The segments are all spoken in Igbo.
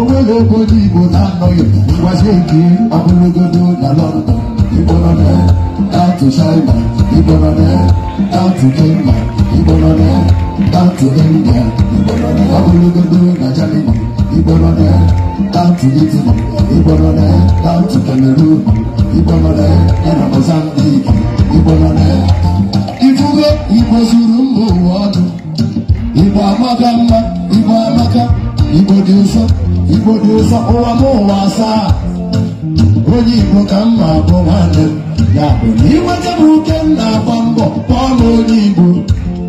ogologo ndị Igbo na-anọghị ngwazi nke ogologodo na London igbolone down to China igbolone down to Kenya igbolone down to India igbolone ogologodo na Germany igbolone down to Italy igbolone down to Cameroon igbolone na Mozambique igbolone ifugo Igbo zuru mba ụwa ọnụ Igbo amaga mma igbo dị ụwa m ụwa asaa onye igbo ka mma bụ nwanne m ya bụ na inweta m uke m na-agba mbọ kpọọ na onye igbo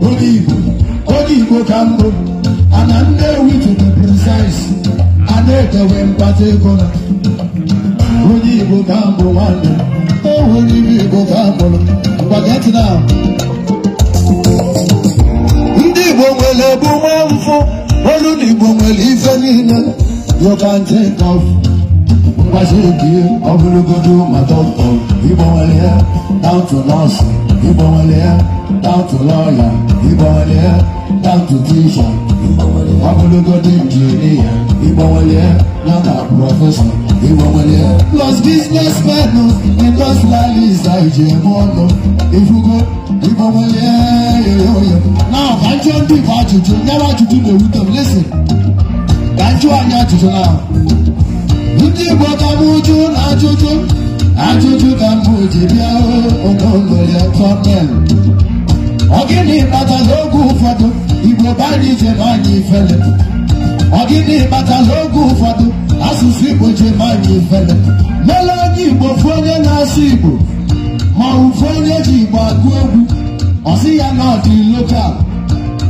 onye igbo onye igbo ka ana nnewi tutu a na-ekewe mkpata ego onye igbo ka mbụ nwanne m onye igbo ka you can take off I Mbashiki, ọbụlụgodu ma dọkịta Igbanwelie, down to nurse Igbanwelie, down to lawyer He Igbanwelie, down to teacher Ọbụlụgodu injinia Igbanwelie, down to professor Igbanwelie Los businessmen, industrialist, IJM ọnụ Ifugo, Igbanwelie, yoyoyo Now, I don't give out to you, never to do the rhythm, listen ka njụ anyị ajụjụ na ndị Igbo ka m jụ na ajụjụ ajụjụ ka mbụ ji bịa onogoya tọnel ọ gịnị kpatara oge ụfọdụ Igbo bara ije na ifele ọ gịnị kpatara oge ụfọdụ asụsụ Igbo ji ma anyị ifele mele onye Igbo fụ onye na-asụ Igbo ma ụfụ onye ji Igbo agụ egwu ọ sị ya na ọ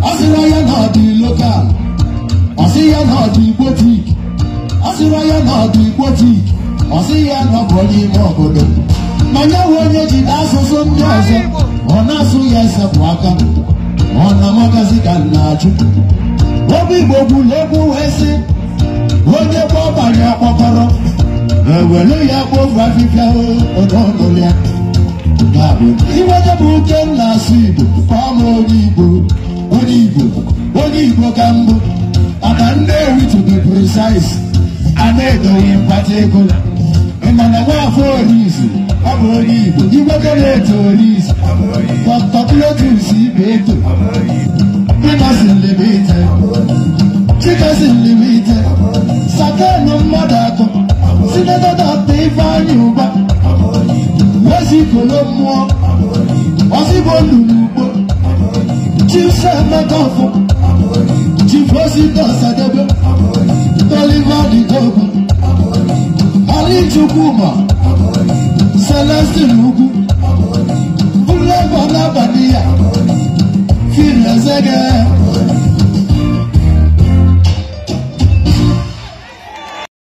ọ sịra ya na ọ ọsị ya na ọdụ igbo tik ọsịra ya na ọdụ igbo tik ọsị ya na ọbụ onye ime obodo manya we onye jide asụsụ ndị ọzọ ọ na-asụ ya esepụ aka ọ na magazi ka nna achụ obi igbo gburu egwu wee sị onye gbọbanye akpọkọrọ ewelu ya gbovu afịfịa ononolya iwede bụ uke nna asụ igbo ka ọ ma onye igbo onye igbo onye igbo ka mbụ Amandewi to be precise, Amedo in particular. Mmanawa afọ orisi, ọbụ onye Igbo, Igboke na-eto orisi, Pọtọkụlọtụs ibe eto, Ịmasị nlimite, Chikasị nlimite, Sakanụ mmadụ atọ, Sinetọ Dọkta Ifeanyị Ụba, Wezikolo mmụọ, Ọzịbo no ugbo, Chief Sematofo, Chief Osita Sadebe, Toliver Didogun, Ali Chukwuma, Celestine Ugu, Bulabola